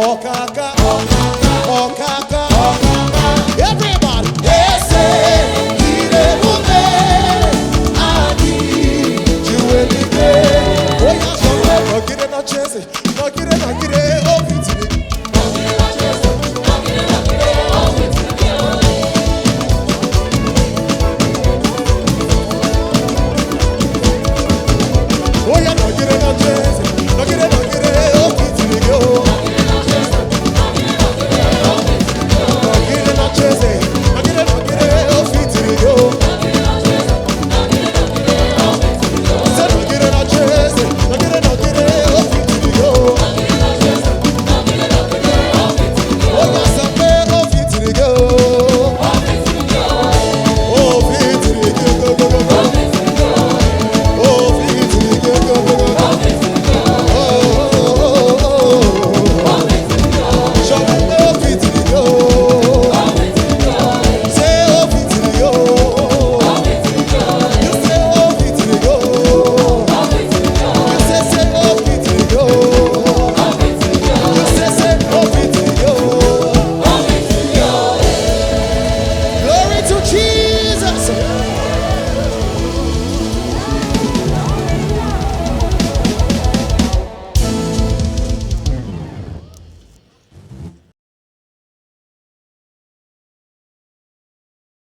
kaka